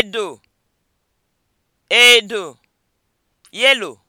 edo edo yelo.